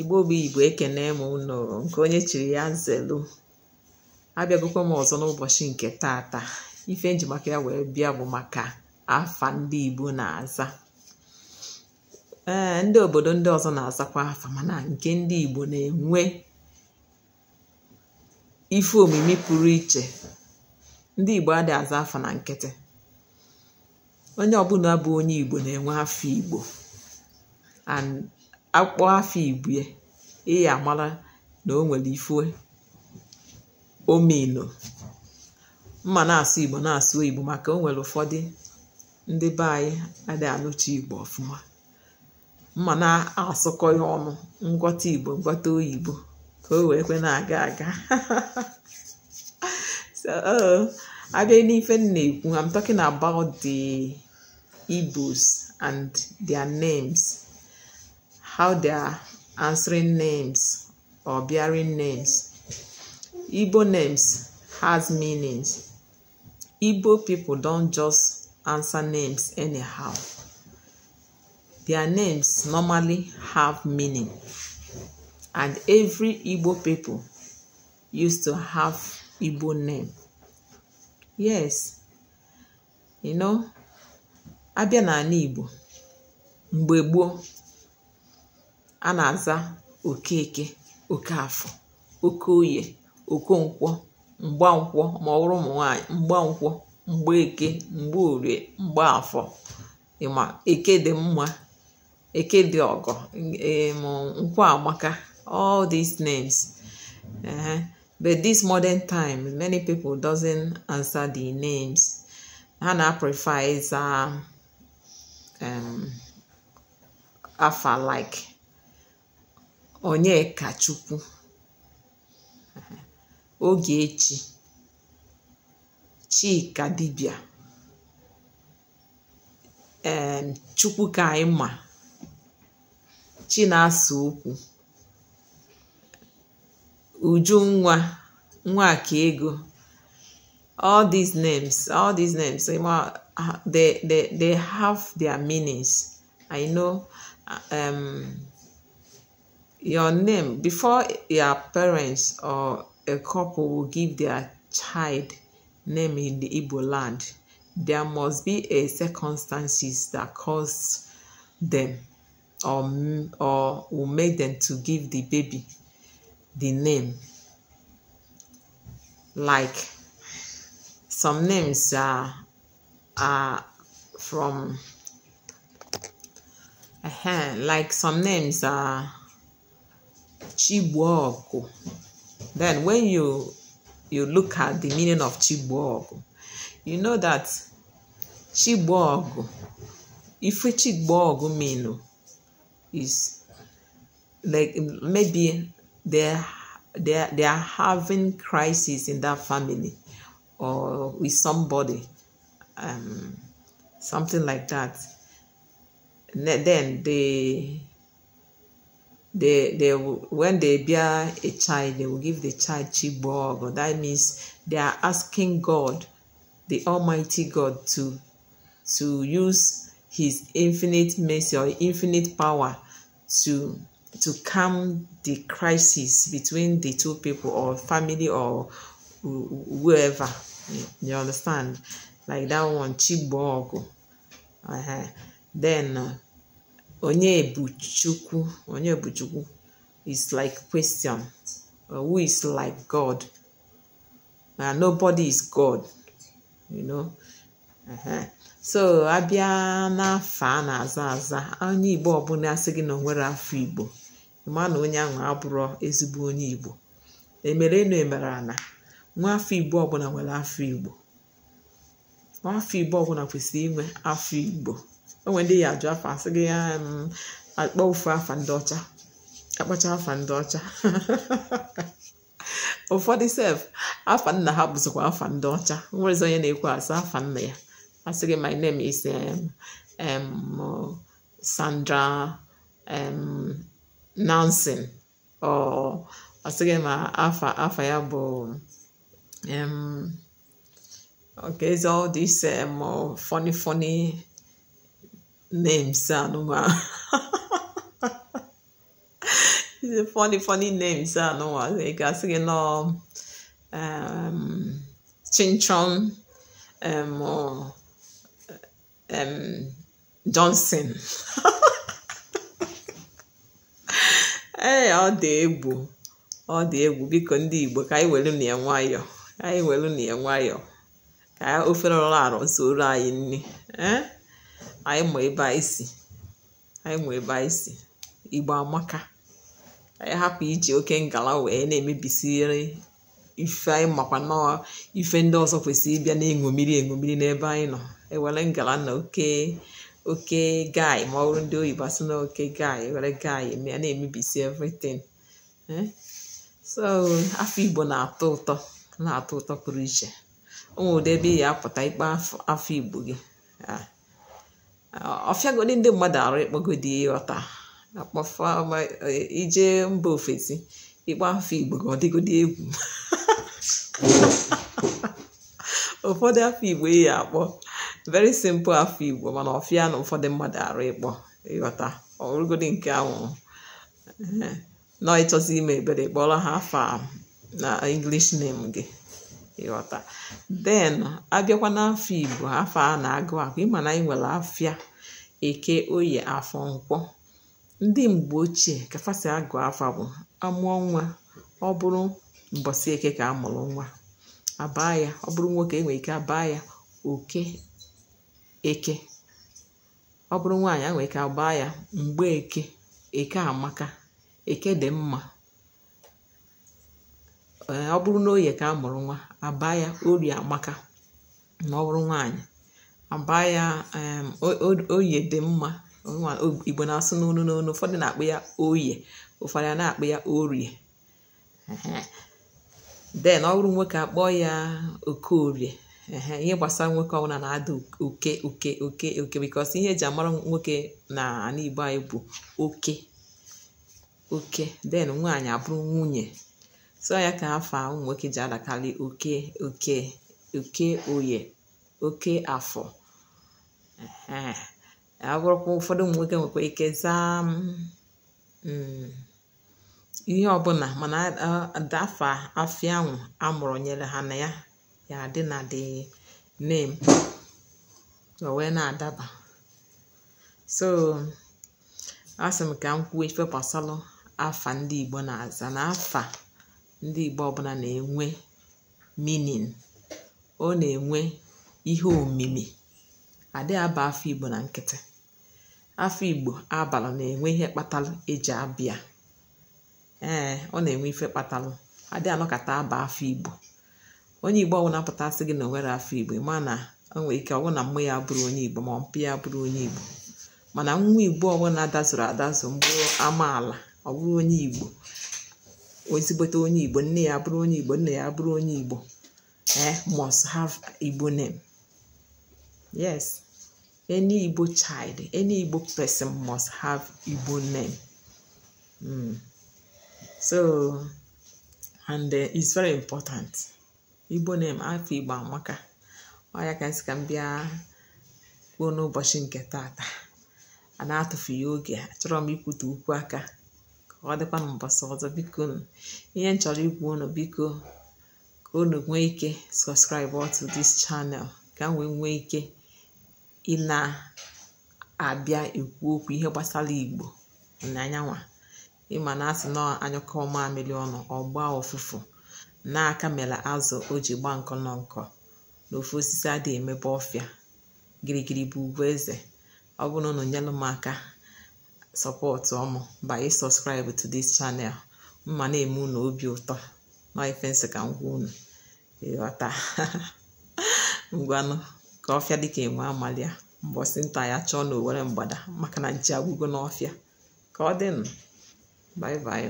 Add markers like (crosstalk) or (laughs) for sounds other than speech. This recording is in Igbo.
igbo bụ igbo ekene m unu nke onye chiri ya nzelu abịagokwa m ọzọ n'ụbọchị nke taata ife njimaka ya wee bịa bụ maka afa ndị igbo na-aza ee ndị obodo ndị ọzọ na-azakwa afa mana nke ndị igbo na-enwe ife omimi pụrụ iche ndị igbo adịghị aza afa na nkịtị onye ọbụla bụ onye igbo na-enwe afọ igbo akpọ afọ ibue ị ya amara na o nwere ome omino mma na-asụ igbo na-asụ igbo maka o nwere ụfọdụ ndị be anyị adịghị anụcha igbo ọfụma mma na-asụkọ ya ọnụ ngwọta igbo ngwọta oyibo ka o wee kwe na-aga aga (laughs) so abịa n'ife m na-ekwu am talking about the Igbos and their names how they are answering names or bearing names. Igbo names has meanings. Igbo people don't just answer names anyhow. Their names normally have meaning. And every Igbo people used to have Igbo name. Yes. You know, abịa n'ala Igbo mgbe gboo a na-aza, "Ok'eke, òkaàfọ oke oyè òkonkwọ m̀gbankwọ ma ọ bụrụ ụmụ nwaanyị m̀gbankwọ m̀gbaeke m̀gbaorie m̀gbaàfọ ịma eke dị mma eke dị ọgọ nkwọ amaka all these names uh, but this modern time many people doesn't answer the names ha na-prefer ịza um, afa like Onyekachukwu Ogechi Chika dibịa em Chukwu ka anyị ma Chinasa okwu Ujunwa Nwakaego all these names all these names they, they, they have their meanings I know um, your name before your parents or a couple will give their child name in the Igbo land, there must be a circumstances that cause them or, or will make them to give the baby the name. Like some names are, are from, uh eh, -huh, like some names are Chibuoku. Then when you you look at the meaning of Chibuoku, you know that Chibuoku, if Chibuoku mean is like maybe they're, they're, they're having crisis in that family or with somebody, um, something like that. Then they they they will, when they bear a child they will give the child chibog that means they are asking god the almighty god to to use his infinite mercy or infinite power to to calm the crisis between the two people or family or whoever you understand like that one chibog uh-huh. then uh, onye bụ Chukwu onye bụ Chukwu is like question uh, who is like God na uh, nobody is God you know uh-huh. so abịa n'afọ a na-aza aza onye Igbo ọbụla asị gị na o nwere afọ Igbo ma na onye ahụ abụrụ ezigbo onye Igbo emere enu emere na nwa afọ Igbo ọbụla nwere afọ Igbo nwa afọ Igbo ọbụla kwesịrị inwe afọ Igbo onwe ndị ya ajụ afọ, asị gị ya akpọ ofu afa ndị ọcha akpacha afa ndị ọcha (laughs) ụfọdụ sef afa nna ha bụzikwa afa ndị ọcha nwerezi onye na-ekwu asị afa nna ya asị gị my name is Sandra Nansen ọ asị gị ma afa afa ya bụ okay so this um, funny funny names anụnwa (laughs) funny funny names ị ga-asị gị nọ chinchon johnson ee ọ dị egwu ọ dị egwu biko ndị igbo ka anyị welu na nwayọọ ka anyị welu na ya ka ofere ọrụ arụ zoro anyị nri anyị ma ebe anyị si anyị ma ebe anyị si igbo amaka anyị hapụ iji oke ngala wee na-emebisiri ife anyị makwa nọọ ife ndị ọzọ kwesịrị ịbịa na-eṅomiri eṅomiri n'ebe anyị nọ ewere ngala na oke oke gai ma ọ bụrụ ndị oyibo asị na oke gai e were gai ya na-emebisi evritin eh? so afọ igbo na-atọ ụtọ na-atọ ụtọ pụrụ iche o nwere ụdị ebe ị ya apụta ikpe afọ igbo gị ah. ọfịa ọfịagodi ndị mmadụ arụ ịkpọgodi ọta akpọfa e, ije mba ofesi ịkpọ afọ igbo ka ọ dịgodi egwu (laughs) ụfọdụ afọ igbo eyi akpọ very simple afọ igbo mana ọfịa na ụfọdụ mmadụ arụ ịkpọ ịghọta ọrụgodi nke anwụrụ nọ ịchọzi ime ebere kpọrọ ha afa na english name gị ịghọta den abịakwa n'afọ igbo afọ a na-agụ akụ ịma na anyị nwere afịa eke oyi afọ nkwọ ndị mgbe ochie kafasị agụ afọ bụ amụọ nwa ọ bụrụ mbọsị eke ka amụrụ nwa abaa ya ọ bụrụ nwoke enwe ike abaa ya oke eke ọ bụrụ nwaanyị ike mgbe eke eke amaka eke dị mma Eh, ọ bụrụ na oye ka a mụrụ nwa abaa ya ori amaka ma ọ bụrụ nwaanyị abaa ya oye dị mma igbo na-asụ n'onu n'onu ụfọdụ na-akpụ ya oye ụfọdụ a na-akpụ ya orie den ọ bụrụ nwoke akpọ ya orie ihe gbasara nwoke ọbụla na-ada oke oke oke oke bikos ihe eji amara nwoke na ala igbo anyị bụ oke oke den nwaanyị abụrụ nwunye Sọ ya ka afa ụmụ nwoke ji adakarị oke oke oke oye oke afọ agwụrụkwa ụfọdụ ụmụ nwoke nwekwa ike zaa mm, mm. ihe ọbụla mana dafa afia ahụ amụrụ nyere ha na ya ya adị na dị name o wee na-adaba so asị m ka m kwuo ife gbasalụ afa ndị Igbo na-aza n'afa ndị Igbo ọbụla na-enwe minin ọ na-enwe ihe omimi adị aba afọ Igbo na nkịtị afọ Igbo abalị na-enwe ihe kpatalụ eji abịa ee ọ na-enwe ife kpatalụ adị anọkata aba afọ Igbo onye Igbo ọbụla pụtasị gị na onwere afọ Igbo ma na o nwere ike ọ bụrụ na mmụ ya bụrụ onye Igbo ma mpụ ya bụrụ onye Igbo mana nwa Igbo ọbụla dazuru adazu mgbe amaala ọ bụrụ onye Igbo ezigbote onye igbo nne ya bụrụ onye igbo ya bụrụ onye igbo eh must have igbo name yes any igbo child any igbo person must have igbo name mm. so and uh, it's very important igbo name afọ igbo amaka ka nsị ka m bịa kwuo n'ụbọchị nke a na oge m ikwute ukwu aka ka ọ dịkwa na mbọsị ọzọ biko ihe m chọrọ igwu unu biko ka unu nwee ike sọskraịbụ otu this channel ka m wee nwee ike ị na-abịa ekwu okwu ihe gbasara igbo n'anyanwa ịma na asị na anyụkọ mamịrị ọnụ ọgba gbaa ụfụfụ n'aka mere azụ o ji gbaa nkọ nọ nkọ na ofu osisi adịghị emebe ọfịa gịrịgịrị bụ ugwu eze ọ bụrụ na unu nyelụ m aka sọpọtụ ọmụ by sọskraịbụ to this channel mma na-eme unu obi ụtọ nọ ifensị ka m gwa unu ịghọta (laughs) ngwanụ ka ọfịa dịka enwe amalịa mbọsị nta ya chọọ na owere mgbada maka na nchi agwụgo n'ọfịa ka ọ dịnụ bye